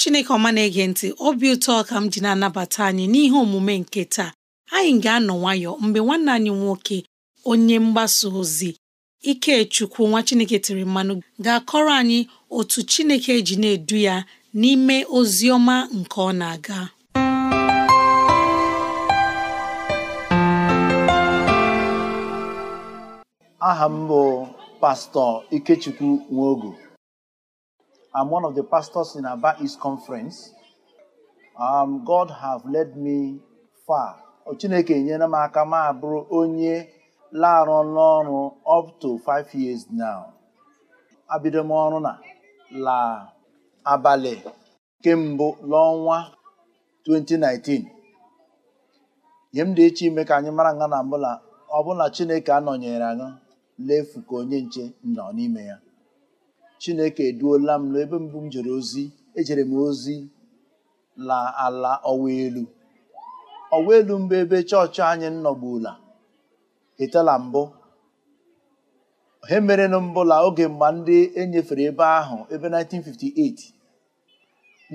chineke ọma na-ege ntị obi ụtọ ka m ji na-anabata anyị n'ihe omume nke taa anyị ga-anọ nwayọ mgbe nwanne anyị nwoke onye mgbasa ozi Ikechukwu nwa chineke tiri mmanụ ga-akọrọ anyị otu chineke ji na-edu ya n'ime ozi ọma nke ọ na-aga aha m bụ pastọ Ikechukwu Nwogo I'm one of the pastors in Aba East Conference. Um, God have led me far. Chineke nyere m aka m abụrụ onye larụ n'ọrụ up to five years now. Abido m na la abalị kemgbe n'ọnwa 2019. nye m dị iche ime ka anyị mara nga na mbụla ọbụla Chineke anọnyere anyị lefu ka onye nche nọ n'ime ya. chineke eduola m n'ebe mbụ m jere ozi ejere m ozi la ala ọwa elu ọwa elu mbụ ebe chọọchị anyị nọgbula etela mbụ he merenụ mbụla oge mgbe ndị enyefere ebe ahụ ebe 1958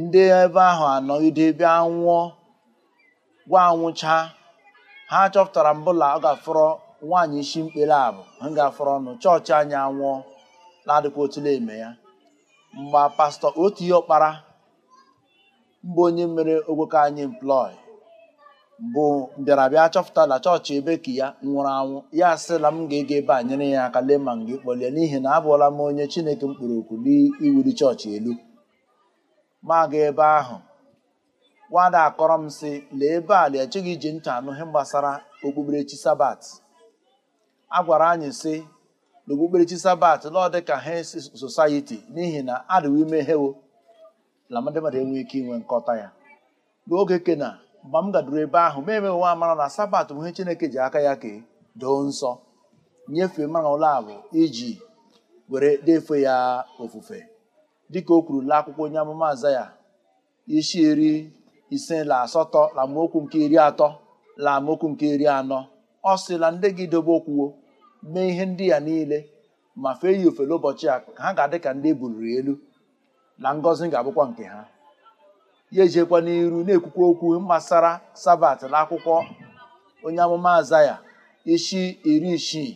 ndị ebe ahụ anọgide ebe anwụọ gwa anwụcha ha chọpụtara mbụla ọ ga nwaanyị isi mkpere abụ ha ga ọnụ chọọchị anyị anwụọ na-adịkwa otule eme ya mgbe pastọ otu ihe ọkpara mba onye mere ogwoke anyị emplọị bụ mbịarabịa chọpụta na chọọchị ebe ka ya nwụrụ anwụ ya asịla m ga-ege ebe a nyere ya aka lee ma m gị kpọlie n'ihi na abụọla m onye chineke mkpụrụ okwu n'iwuli chọọchị elu ma ebe ahụ nwada akọrọ m sị lee ebe a lee echeghị iji ntị anụ ihe gbasara okpukperechi sabat a gwara anyị sị n'okpukperechi sabat lọọ dịka hens society n'ihi na adịwo ime hewo na ndị mmadụ enweghị ike inwe nkọta ya n'oge kena mgbe m gaduru ebe ahụ ma emeghị nwa amara na sabat bụ ihe chineke ji aka ya kee doo nsọ nyefee mara ụlọ abụ iji were defe ya ofufe dịka o kwuru la akwụkwọ onye amụma aza ya isi iri ise la asatọ la amaokwu nke iri atọ la amaokwu nke iri anọ ọ sị na ndị gị dobe okwuwo mee ihe ndị a niile ma fee ya ofele ụbọchị a ha ga-adị ka ndị ebuliri elu na ngọzi ga-abụkwa nke ha ya ejekwa n'iru na-ekwukwa okwu gbasara sabat na akwụkwọ onye amụma azaya isi iri isii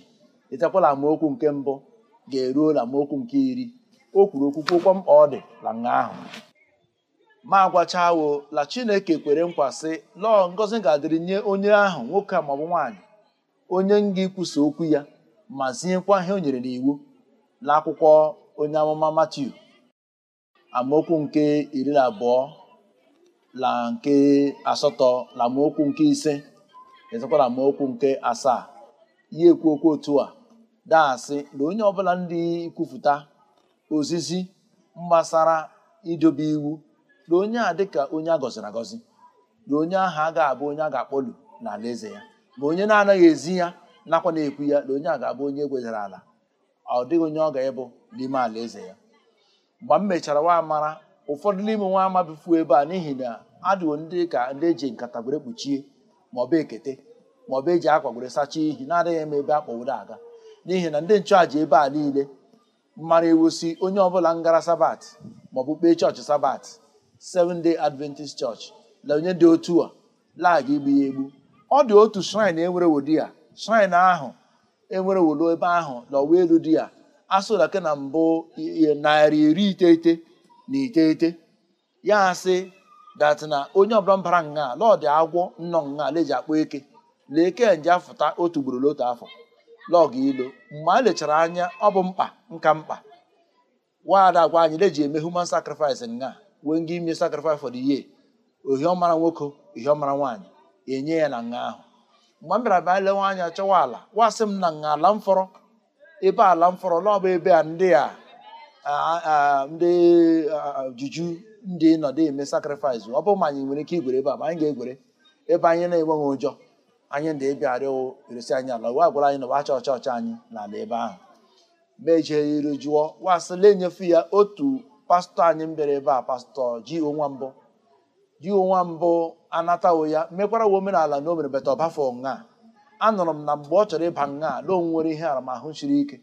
etekwala amaokwu nke mbụ ga-eruo na amaokwu nke iri o kwuru okwukwokwa mkpa ọ dị na nga ahụ ma agwachawo la chineke kwere nkwa sị lọọ ngọzi ga-adịrị nye onye ahụ nwoke maọbụ nwaanyị onye nga ikwusa okwu ya ma ziekwa ihe o nyere n'iwu n'akwụkwọ onye amụma Matiu amaokwu nke iri na abụọ na nke asatọ na amaokwu nke ise ezekwa amaokwu nke asaa ya ekwu okwu otu a daasị na onye ọbụla ndị kwupụta ozizi mgbasara idobe iwu na onye a dịka onye a gọziri agọzi na onye ahụ ga abụ onye a ga-akpọlu ala eze ya ma onye na-anaghị ezi ya nakwa na-ekwu ya na onye a ga-abụ onye egwezara ala ọ dịghị onye ọ ga-ebu n'ime ala eze ya mgbe m mechara nwa mara ụfọdụ n'ime nwa ama bifuo ebe a n'ihi na adịwo ndị ka ndị eji nkata gwere kpuchie maọbụ ekete maọbụ eji akwa gwere sachaa ihi na-adịghị m ebe akpọwuru aga n'ihi na ndị nchụàja ebe a niile mara ewosi onye ọbụla ngara sabat maọbụ kpee chọọchị sabat Seven Day Adventist Church na onye dị otu a lagha igbu ya egbu ọ dị otu shrine e nwere wodi ya shrine ahụ enwere wolo ebe ahụ n'ọwa elu a ya asụlake na mbụ narị iri iteghete na iteghete ya asị dat na onye ọbụla mbara nga lọdị agwọ nnọ nga leji akpọ eke lee eke nje afụta otu ugboro n'otu afọ lọgụ ilo mgbe a lechara anya ọ bụ mkpa nka mkpa nwaada agwa anyị leji eme human sacrifice nga wee nga ime sacrifice for the year ohiọmara nwoke ohiọmara nwaanyị enye ya na nga ahụ mgbe m bịara bịa lewe anya chọwa ala wasị m na nga ala mfọrọ ebe ala mfọrọ n'ọba ebe a ndị a ndị juju ndị nọdụ eme sakrifis ọ bụ ma anyị nwere ike igwere ebe a ma anyị ga-egwere ebe anyị na-enweghị ụjọ anyị ndị ịbịa arịọ eresi anyị ala wa gwara anyị na wacha ọcha ọcha anyị n'ala ebe ahụ ma ejere jụọ wasịla enyefu ya otu pastọ anyị m bịara ebe a pastọ ji onwa mbụ ji onwa mbụ anatawo ya mekwara wa omenala na o mere bata ọbafọ nga anụrụ m na mgbe ọ chọrọ ịba nga na o nwere ihe aramahụ chiri ike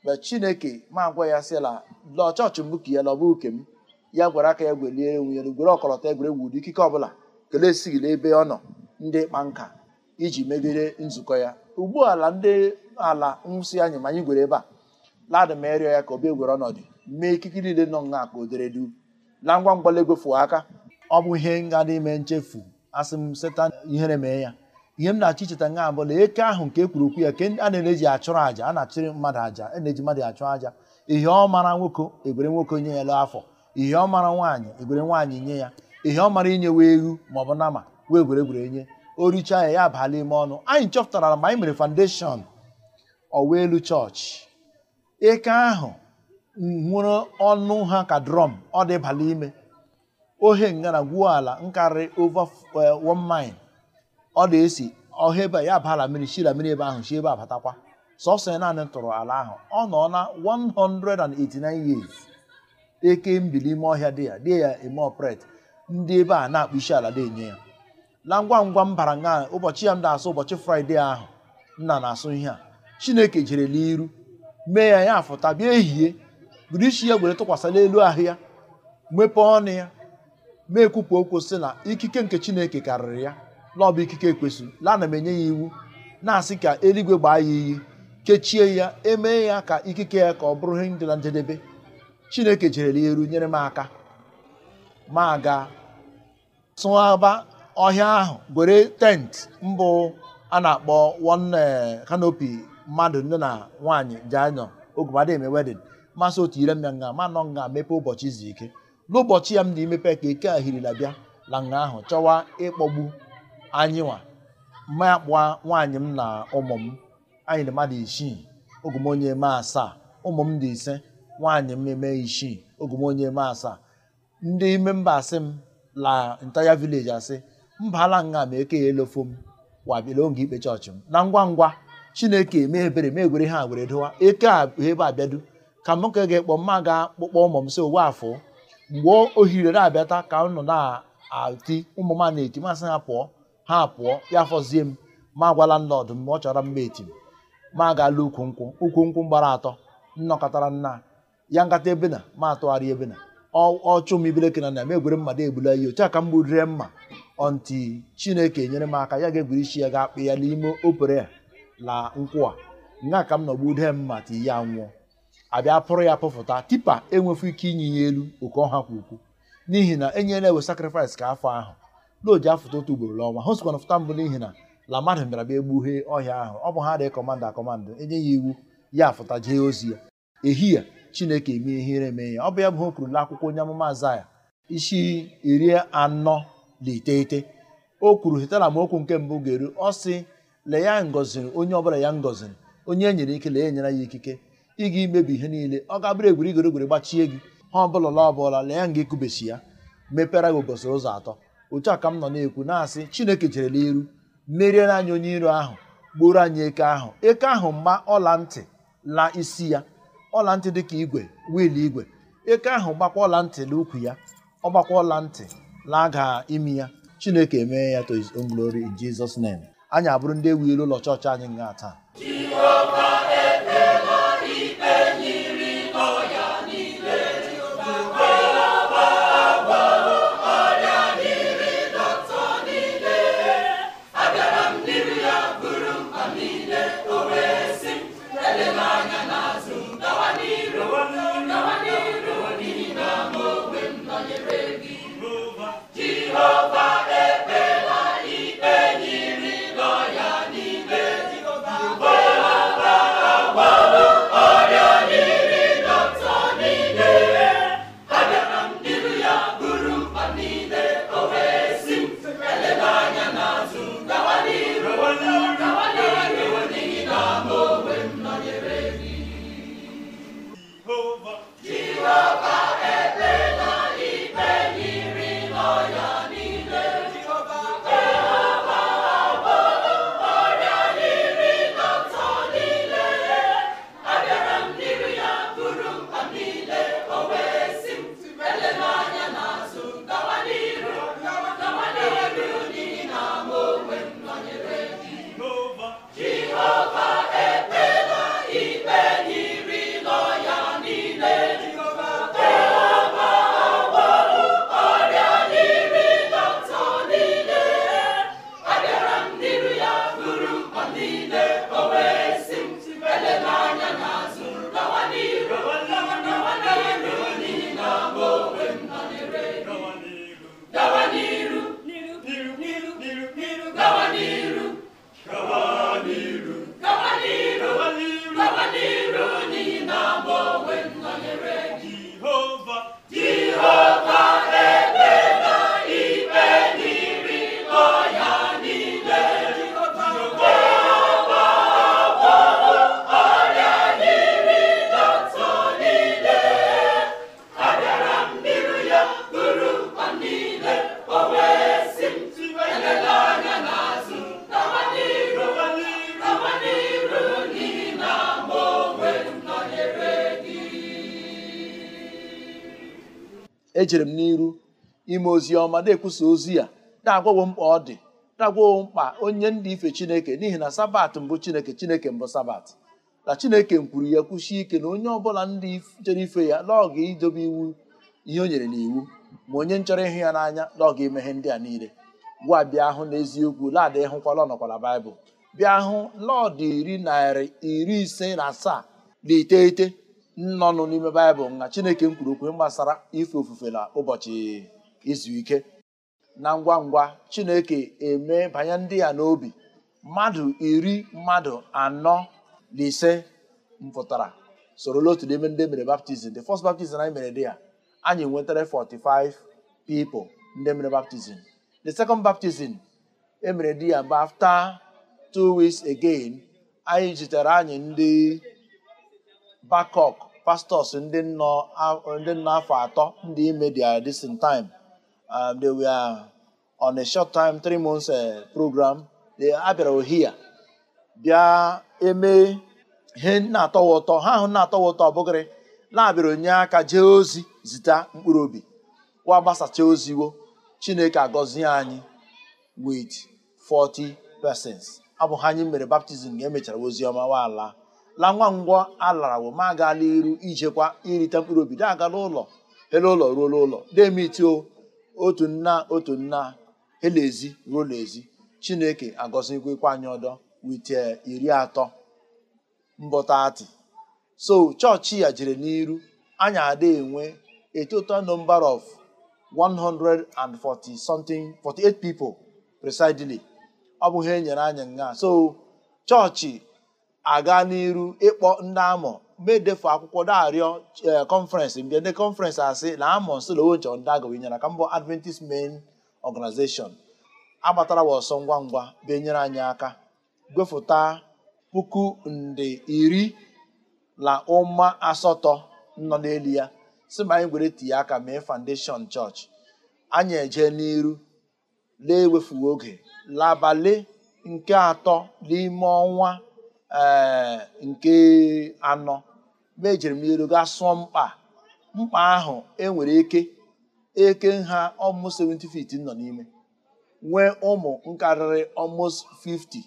mgbe chineke ma gwa ya sịla la chọọchị mbụ ka ya lọba ke m ya gwara aka ya gwelie enwe ya gwere ọkọlọtọ egwuregwu ụdị ikike ọbụla kelee esighị n'ebe ọ nọ ndị kpa nka iji megide nzukọ ya ugbu ala ndị ala nwụsị anyị ma anyị gwere ebe a ladị ma ya ka obi egwere ọnọdụ mee ikike niile nọ nha ka o dere du na ngwa ngwa egwefu aka ọ bụ ihe dị ime nchefu asị m setan ihere mee ya ihe m na-achọ icheta nga na eke ahụ nke ekwuru okwu ya ke a na-eji achụrụ aja a na-achụrụ mmadụ aja a e na-eji mmadụ achụ aja ihe ọ mara nwoke egwere nwoke nye ya lụ afọ ihe ọ mara nwaanyị egwere nwaanyị nye ya ihe ọ mara inye wee ewu bụ nama wee gweregwere enye o richa ya ya abala ime ọnụ anyị chọpụtara ma anyị mere foundation ọwa elu chọọchị eke ahụ nwere ọnụ ha ka drum ọ dị bala ime ohe ngara gwuo ala nkarị over eh, one mile ọ na-esi ọha ebe ya bala mmiri shira mmiri ebe ahụ shi ebe abatakwa sọsọ naanị tụrụ ala ahụ ọ nọ na 189 years eke mbili ime ọhịa dị ya dị ya eme ọpret ndị ebe a na-akpụ isi ala dị enye ya na ngwa ngwa m bara nga ụbọchị ya m na-asụ ụbọchị fraịde ahụ nna na-asụ ihe a chineke jere n'iru mee ya ya afụta bịa ehihie buru isi ya gwere tụkwasị n'elu ahụ ya mepee ọnụ ya na-ekwupụ okwu sị na ikike nke Chineke karịrị ya na bụ ikike ekwesịrị la na m enye ya iwu na-asị ka eluigwe gbaa ya iyi kechie ya emee ya ka ikike ya ka ọ bụrụ ihe dị na njedebe Chineke jere ya eru nyere m aka ma ga tụaba ọhịa ahụ gwere tent mbụ a na-akpọ one eh, canopy mmadụ nne na nwaanyị ji ogumadị eme masị otu ire m ya nga ma nọ nga mepe ụbọchị izu ike n'ụbọchị ya m na-emepe ka eke ahiri labịa la nga ahụ chọwa ịkpọgbu anyị nwa mma kpụa nwaanyị m na ụmụ m anyị na mmadụ isii ogu m onye eme asaa ụmụ m dị ise nwaanyị m eme isii ogu m onye eme asaa ndị ime mba asị m la ntaya vileji asị mba ala nga ma eke ya elofo m wabịala oge ikpe chọọchị m na ngwa ngwa chineke mee ebere mee egwere ha were eke a ebe abịadu ka m ka ga-ekpọ mma ga akpụkpọ ụmụ m si owe afọ mgbe ohiri na-abịata ka m nọ na-ati ụmụ m na-eti masị ha pụọ ha pụọ ya fọzie m ma agwala nlọdụ m ọ chọrọ mma eti m ma agaala ukwu nkwụ ukwu nkwụ gbara atọ nnọkọtara nna ya nkata ebe na ma atụgharị ebe na ọchụ m ibeleke na na m egwere mmadụ egbula ihe otu a ka m mma ọnti chineke nyere m aka ya ga-egwuri isi ya ga-akpị ya n'ime opere la nkwụ a nga ka m nọgbu dee mma ti ya nwụọ abịa pụrụ ya pụfụta tipa enwefu ike inye ya elu oke ọha kwa ukwu n'ihi na enyela ewe sakrifis ka afọ ahụ n'oji afụta otu ugboro n'ọnwa ha kwana fụta mbụ n'ihi na la mmadụ bịara bịa egbughee ọhịa ahụ ọ bụ ha dị kọmanda akọmanda enye ya iwu ya afụta jee ozi ya ehihie chineke eme ihere eme ya ọ bụ ya bụ ha na akwụkwọ onye amụma azaya isi iri anọ na iteghete o kwuru hetara m okwu nke mbụ ga-eru ọ sị lee ya ngọziri onye ọbụla ya ngọziri onye e nyere ike lee enyere ya ikike ị ga imebi ihe niile ọ ga-abụrụ egwuri igorogoro gbachie gị ha ọbụla la ọbụla lee nga ekubesi ya mepere gị ụbọchị ụzọ atọ otu a ka m nọ na-ekwu na-asị chineke jerela iru meriere anyị onye iro ahụ gburu anyị eke ahụ eke ahụ mma ọla ntị la isi ya ọla ntị dị ka igwe wiil igwe eke ahụ gbakwa ọla ntị na ukwu ya ọ gbakwa ọla ntị laga imi ya chineke emee ya to glory in Jesus anyị abụrụ ndị ewu ụlọ chọọchị anyị nga taa ejere m n'iru ime ozi ọma na-ekwusa ozi ya na-agwawo mkpa ọ dị na-agwawo mkpa onye ndị ife chineke n'ihi na sabat mbụ chineke chineke mbụ sabat na chineke kwuru ya kwusi ike na onye ọbụla ndị chere ife ya n'ọga idobe iwu ihe o nyere n'iwu ma onye nchọrọ ịhụ ya n'anya n'ọga emeghe ndị a niile gwa bịa hụ n'eziokwu laadị hụkwala ọnọkwala baịbụl bịa hụ lọọdụ iri narị iri ise na asaa na iteghete nnọnụ n'ime baịbụl na chineke kwuru okwu gbasara ife ofufe na ụbọchị izu ike na ngwa ngwa chineke eme banye ndị ya n'obi mmadụ iri mmadụ anọ na ise mpụtara sorola otu n'ime ndị mere baptizim the first baptizim anyị mere dị ya anyị nwetara 45 people ndị mere baptizim the second baptizim emere diya ya but after two weeks anyị jitere anyị ndị bakok. pastors ndị nọ ndị nọ afọ atọ ndị ime their distant time um, they were on a short time three months eh, program they abịara ohia bịa eme ihe na ụtọ ha ahụ na-atọwa ụtọ ọbụgịrị na-abịara onye aka jee ozi zita mkpụrụ obi wa gbasacha oziwo chineke agọzie anyị with 40 persons abụghị anyị mere baptizim ga e emechara ozi ọma nwaala la nwa ngwọ alara wụ ma agala iru ijekwa irite mkpụrụ obi da agala ụlọ ele ụlọ ruola ụlọ demitio otu nna otu nna elezi ruo n'ezi chineke agọzikwa anyị ọdọ wit iri atọ mbọtati so chọọchị ya jere n'iru anyị ada enwe a total number of 140 something 48 people presidely ọ bụghị enyere anyị nga so chọọchị aga n'iru ịkpọ ndị amọ medefu e akwụkwọ darịọ kọnferensị e, mbịa ndị kọnferensị asị na amọ nsolowo nchọ ndị agawa inyere aka mbọ adventist main organization agbatara wa ọsọ ngwa ngwa benyere anyị aka gwefụta puku nde iri na ụma asatọ nọ n'elu ya si ma anyị gwere tinye aka mee foundation chọọchị anyị eje n'iru lee ewefughị oge labalị nke atọ n'ime ọnwa ee eh, nke anọ mejiri e m ga gaa sụọ mkpa mkpa ahụ enwere eke eke nha ọmụ 70 feet nọ n'ime nwee ụmụ nkarịrị ọmụ 50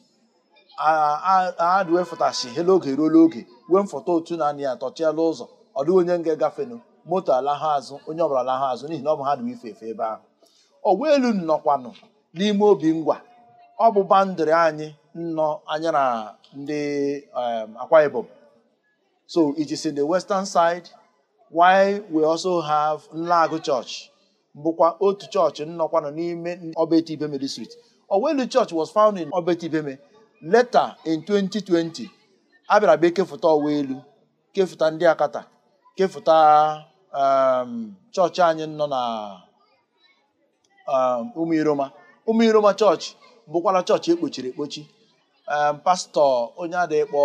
adwefụtashi ha oge ruola oge wee mfọta otu naanị anị ya ụzọ ọ dịghị onye nga gafenụ moto alahụ azụ onye ọbụla alahụ azụ n'ihi na ọ bụ ha dị ife efe ebe ahụ ọgwa elu nọkwanụ n'ime obi ngwa ọ bụ anyị nnọ anya na ndị um, Akwa Ibom. So it is in the western side why we also have Nlagu Church bụkwa otu chọọchị nnọkwa nọ n'ime Obeti Ibeme district. Owelu Church was found in Obeti Ibeme later in 2020 a bịara bịa kefụta Owelu kefụta ndị Akata kefụta um, chọọchị anyị nọ na Umuiroma Umuiroma chọọchị bụkwara chọọchị ekpochiri ekpochi pastọ onye adịkpọ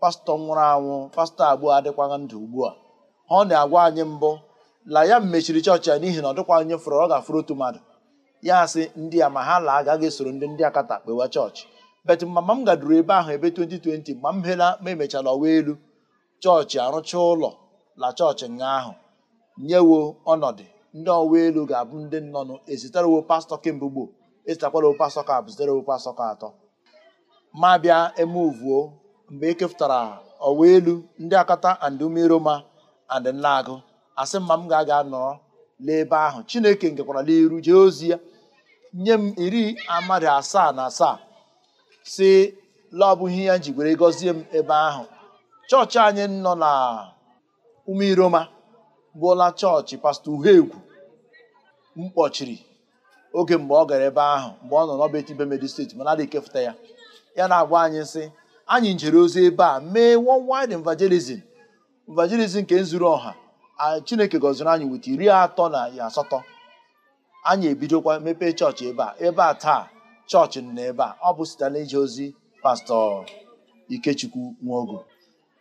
pastọ nwụrụ anwụ pastọ abụọ adịkwaghị ndụ ugbu a ọ na-agwa anyị mbụ la ya mechiri chọọchị ya n'ihi na ọ dịkwa onye fụrụ ọ ga-afụrụ otu mmadụ ya sị ndị a ma ha la agaghị esoro ndị ndị akata kpewa chọọchị bet mama m gaduru ebe ahụ ebe 2020 mgbe m hela ma emechala ọwa elu chọọchị arụcha ụlọ la chọọchị nga ahụ nyewo ọnọdụ ndị ọwa elu ga-abụ ndị nnọnụ ezitarewo pastọ kemgbe gboo ezitakwara pastọ ka abụ zitarewo pastọ ka atọ ma bịa emuvuo mgbe ekefutara ọwa elu ndị akata and umeroma and nlaagụ asị mma m ga-aga nọrọ n'ebe ahụ chineke ngekwara n'iru jee ozi ya nye m iri amadị asaa na asaa si laọbụghị ya jigwere gọzie m ebe ahụ chọọchị anyị nọ na umeiroma bụla chọọchị pastọ m kpọchiri oge mgbe ọ gara ebe ahụ mgbe ọ nọ n'ọba etibe medi steeti mana adịghị ekefụta ya ya na-agwa anyị sị anyị njere ozi ebe a mee worldwide evangelism evangelism nke zuru ọha chineke gọziri anyị weta iri atọ na asatọ anyị ebidokwa mepee chọọchị ebe a ebe a taa chọọchị nọ ebe a ọ bụ site na ozi pastọ ikechukwu nwogo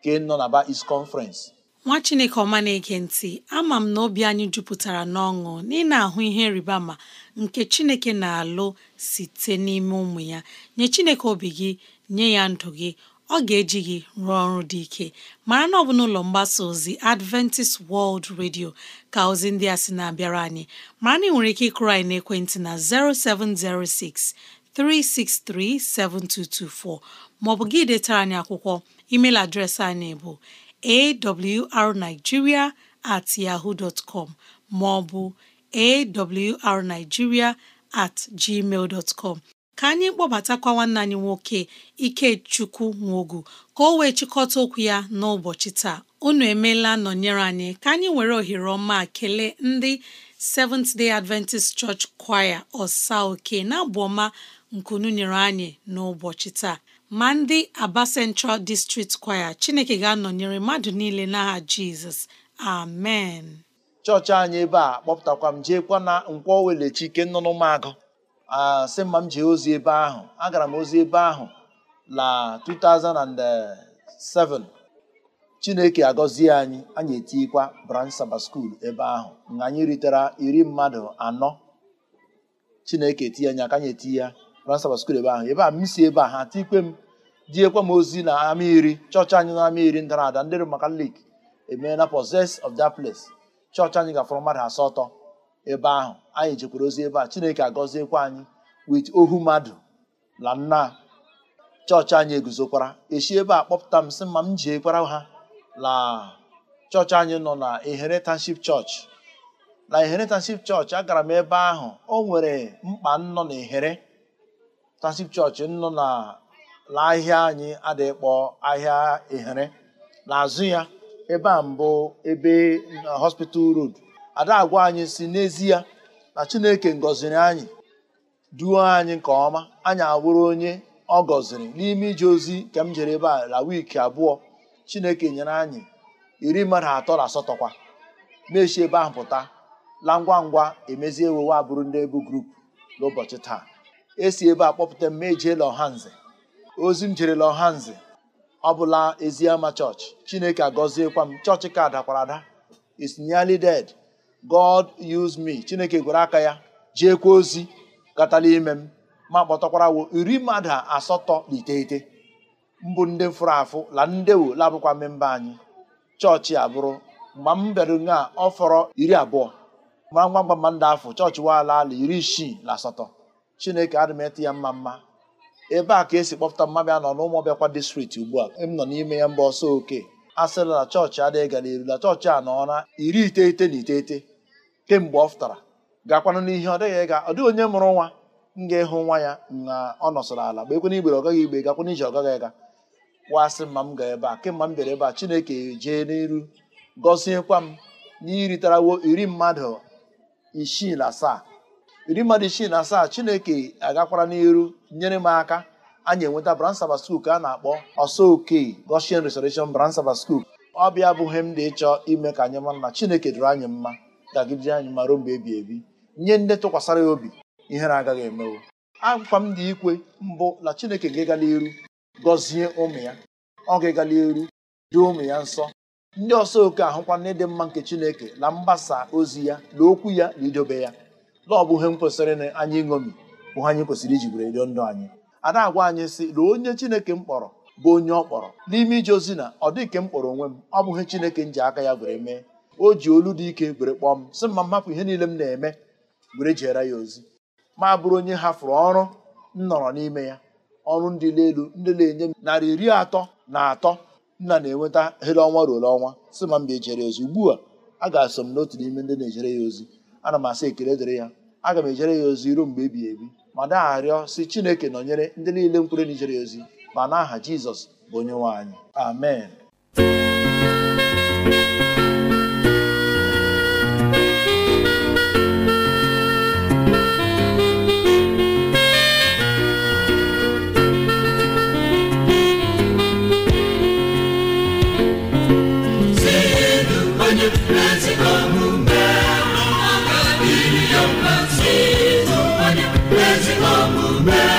ị nọ na ba is conference nwa chineke ọma na-ege ntị ama m na obi anyị jupụtara n'ọṅụ na ahụ ihe rịba ma nke chineke na-alụ site n'ime ụmụ ya nye chineke obi gị nye ya ndụ gị ọ ga-eji gị rụọ ọrụ dị ike mara na ọ bụ n'ụlọ mgbasa ozi Adventist World Radio ka ozi ndị a sị na-abịara anyị mara na ị nwere ike ịkụrụ anyị n'ekwentị na 0706 363 7224 maọbụ gị detara anyị akwụkwọ email adreesị anyị bụ awrnigeria at yahoo dot com maọbụ awrnigeria at gmail dot com ka anyị kpọbatakwa nwanne anyị nwoke Ikechukwu Nwogu ka o wee chịkọta okwu ya n'ụbọchị taa unu emeela nọnyere anyị ka anyị were ohere ọma kelee ndị Seventh Day Adventist Church Choir ọsa oke na abụ ọma nkunu nyere anyị n'ụbọchị taa ma ndị Aba Central District Choir Chineke ga-anọnyere mmadụ niile n'aha Jizọs amen chọọchị anyị ebe a kpọpụtakwa m jeekwa na nkwọ welechi ike nọ n'ụmụagụ asị mma m jee ozi ebe ahụ agara m ozi ebe ahụ na 2007 Chineke agọzie anyị anyị etikwa Branch Saba School ebe ahụ na anyị ritere iri mmadụ anọ Chineke etinye anya ka anyị eti ya Grand Sabbath School ebe ahụ ebe a m si ebe a ha ikpe m diekwa m ozi na ama iri chọọchị anyị na ama iri ndara ada ndị Romakalik emeela poses of that place chọọchị anyị gafọrọ mmadụ asatọ ebe ahụ anyị jekwara ozi ebe a Chineke agọziekwa anyị wit ohu mmadụ na nna chọọchị anyị eguzokwara echi ebe a kpọpụta m sị ma m jeekwara ha na chọọchị anyị nọ na Inheritance chọọchị na Inheritance chọọchị agara m ebe ahụ o nwere mkpa m nọ na ehere tansip chọọchị nọ na ahịa anyị adịkpọ ahịa ehere n'azụ ya ebe a mbụ ebe hospital road ada agwa anyị si n'ezie na chineke ngọziri anyị duo anyị nke ọma anyị awụrụ onye ọ gọziri n'ime ije ozi nke m jere ebe a la wiiki abụọ chineke nyere anyị iri mmadụ atọ na asatọ kwa mechi ebe ahụ pụta la ngwa ngwa emezie ewewe abụrụ ndị ebu grup n'ụbọchị taa esi ebe a kpọpụta m ejeela ọhanze ozi m jere ọhanze ọ bụla eziama chọọchị chineke agọziekwa m chọọchị ka dakwara ada is nearly dead god use me chineke gụrụ aka ya jeekwa ozi gatala ime m ma kpọtakwara wo iri mmadụ asatọ na iteghete mbụ ndị fụrụ afụ la ndewo labụkwa mmemba anyị chọọchị abụrụ mgbe m bịara nga ọ fọrọ iri abụọ mara ngwa ngwa mma afọ chọọchị waala ala iri isii na asatọ chineke adị m ya mma mma ebe a ka esi kpọpụta mmabịa nọ na ọbịakwa distrikti ugbu a m nọ n'ime ya mba ọsọ oke a na chọọchị adịghị gara eru na chọọchị a nọ na iri iteghete na iteghete kemgbe ọ fụtara gakwanụ n'ihe ọ dịghị ịga ọ dịghị onye mụrụ nwa m ga-ịhụ nwa ya na ọ nọsọrọ ala mgbe ekwe igbere ọ gaghị igbe gakwana ije ọ gaghị ịga asị mma m ga ebe a kemgbe m bịara ebe a chineke jee n'elu gọziekwa m n'iritarawo iri mmadụ isii na asaa iri mmadụ isii na asaa chineke agakwara n'iru nyere m aka anyị enweta branch Sabbath School ka a na-akpọ ọsọ oke Goshen Restoration branch Sabbath School ọ bịa abụghị m dị ịchọ ime ka anyị mara na chineke dịrị anyị mma gagidere anyị ma ruo mgbe ebi ebi nye ndị tụkwasara ya obi ihere agaghị emewo akwa m dị ikwe mbụ na chineke ga-ịga n'iru gọzie ụmụ ya ọ ga-ịga n'iru duo ụmụ ya nsọ ndị ọsọ oke ahụkwa n'ịdị mma nke chineke na mgbasa ozi ya na okwu ya na idobe ya ọ bụghị m kwesịrị na anyị ṅomi bụ anyị kwesịrị iji were rio ndụ anyị ada agwa anyị sị na onye chineke m kpọrọ bụ onye ọ kpọrọ n'ime ije ozi na ọ dị ka m kpọrọ onwe m ọ bụghị chineke m ji aka ya gwere mee o ji olu dị ike were kpọọ m sị mma mmapụ ihe niile m na-eme were jeere ya ozi ma bụrụ onye hafụrụ ọrụ m nọrọ n'ime ya ọrụ ndị elu ndị na-enye m narị iri atọ na atọ nna na-enweta hele ọnwa ọnwa si ma mba ejere ya ozi ugbu a a ga-asọ m n'otu n'ime ndị na-ejere ya ozi ana m asị ekele dịrị ya aga m ejere ya ozi ruo mgbe ebighị ebi ma rịọ si chineke nọnyere ndị niile mkwere na ya ozi ma n'aha jizọs bụ onye nwe anyị amen omume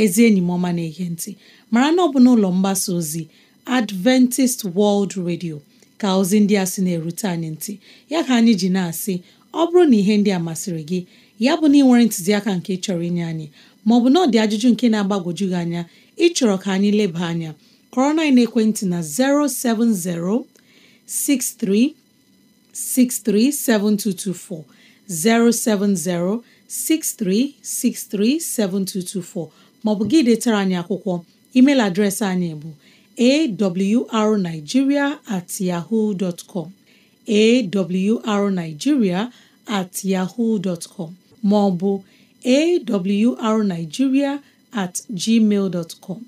ezi enyi m ọma na-ege ntị mara na ọ bụ n'ụlọ mgbasa ozi Adventist World Radio ka ozi ndị a sị na-erute anyị ntị ya ka anyị ji na-asị ọ bụrụ na ihe ndị a masịrị gị ya bụ na ị nwere ntụziaka nke chọrọ inye anyị Ma maọbụ na ọ dị ajụjụ nke na-agbagwoju gị anya ịchọrọ ka anyị leba anya kọrọ na ekwentị na 070 63 7224. 070 maọbụ gị detara anyị akwụkwọ emeil adreesị anyị bụ arigiria at yahoo com at yahoo com maọbụ awrnigeria at gmail com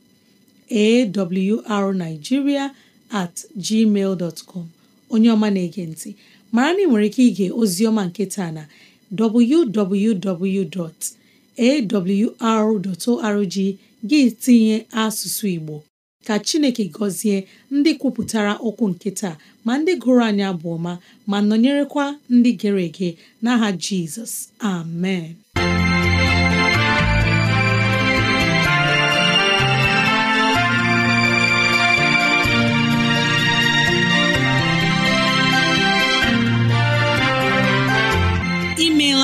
at gmail com onye ọma na-ege ntị mara na ị nwere ike ige ozioma nke taa na www.awr.org gị tinye asụsụ Igbo ka Chineke gọzie ndị kwupụtara okwu nke taa ma ndị gụrụ anya abụ ma nọnyerekwa ndị gere ege n'aha Jizọs amen